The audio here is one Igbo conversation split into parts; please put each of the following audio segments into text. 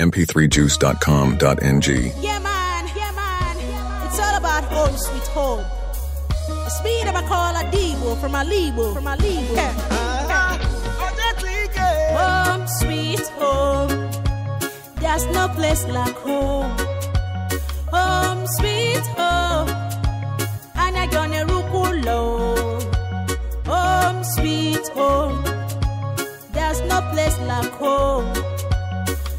mp3juice.com.ng. Yeah, man, yeah, man. It's all about home sweet home. A speed of a call a Debo from a Lebo, from a Lebo. Yeah. Uh, uh-huh. yeah. Home sweet home. There's no place like home. Home sweet home. And I gonna rukulo. Home sweet home. There's no place like home.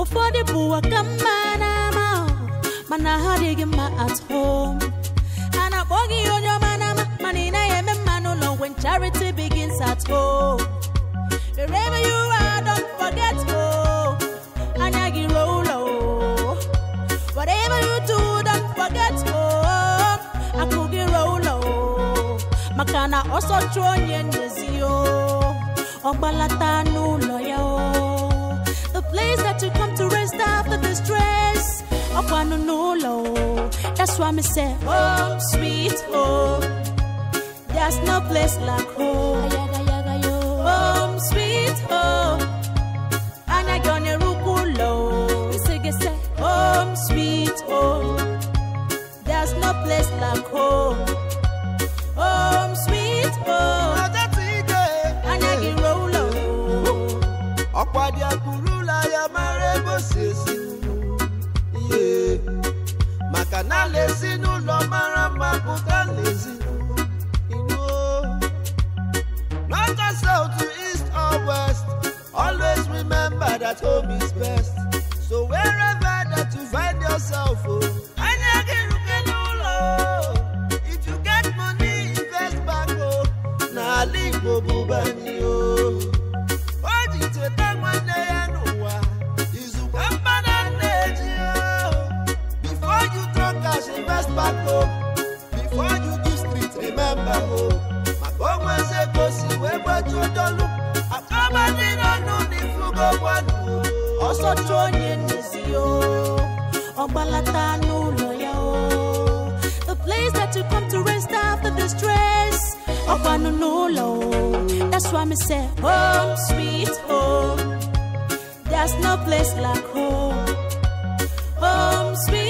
ụfọdụ bụ aka mma n'ama mana ha adịghị mma at home a na-akpọ ihe onye ọma n'ama mana ị naghị eme mma n'ụlọ when charity begins at home wherever you don't forget home oh. anya gị ruo ụlọ whatever you do don't forget home oh. akụ gị ruo ụlọ maka na ọsọ chụọ onye ndezi anụ one on no low. That's why me say, oh, sweet home. Oh, there's no place like home. Home, oh. oh, sweet home. And sweet home. There's no place like home. Home, sweet home. maka na ala ezinụlọ mara mma pụta n'ezinụlọ Not just south to east or west always remember that home is best so wherever that to find yourself oh, anya ga-eruke n'ụlọ if you get money invest back oh, n'ala Igbo bụbani o oh. o ji cheta maka onwezi wee onye ọgbalata n'ụlọ ya o place that you come to rest after the stress n'ụlọ o that's me say home oh, sweet home there's no place like home home sweet